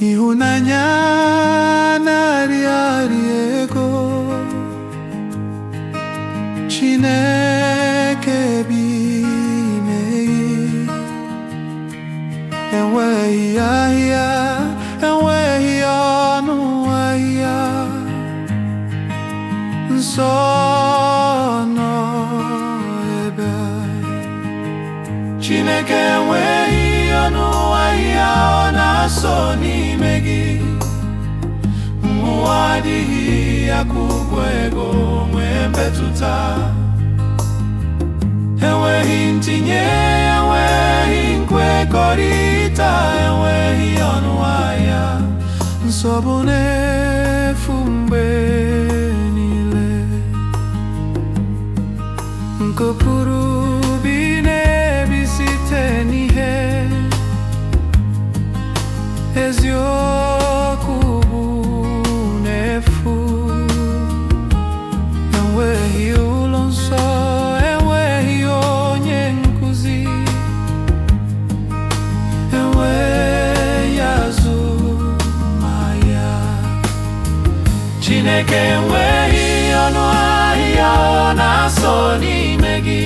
ịhụnanya na-arịa arịa ego Chineke bi n'ime enweghị ahịa enweghị ọnụ ahịa nsọ nọ ebe Chineke enweghị ọnụ ahịa ọ na-asọ n'ime gị adịghị ya ka ego nwee mmetụta enweghị ntinye enweghị nkwekọrịta enweghị ọnụ ahịa nsogbu na-efu mgbe niile nke Chineke enweghị ọnụ ahịa ọ na-asọ n'ime gị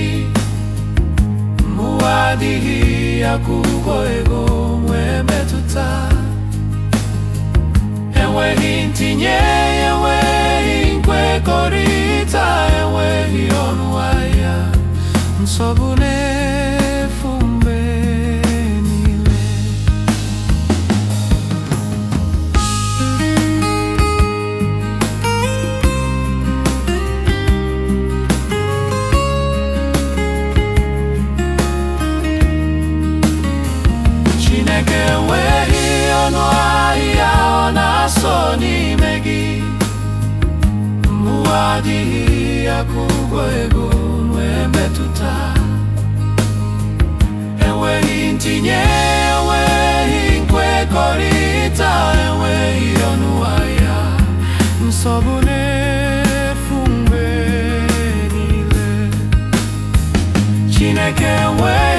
mmụọ adịghị akwụkwọ ego nwee metụta enweghị ntinye enweghị nkwekọrịta enweghị ọnụ ahịa nsogbu adịghị akwụkwọ ego nwee mmetụta enweghị ntinye enweghị nkwekọrịta enweghị ọnụ ahịa nsogbu na-efu mgbe niile Chineke nwee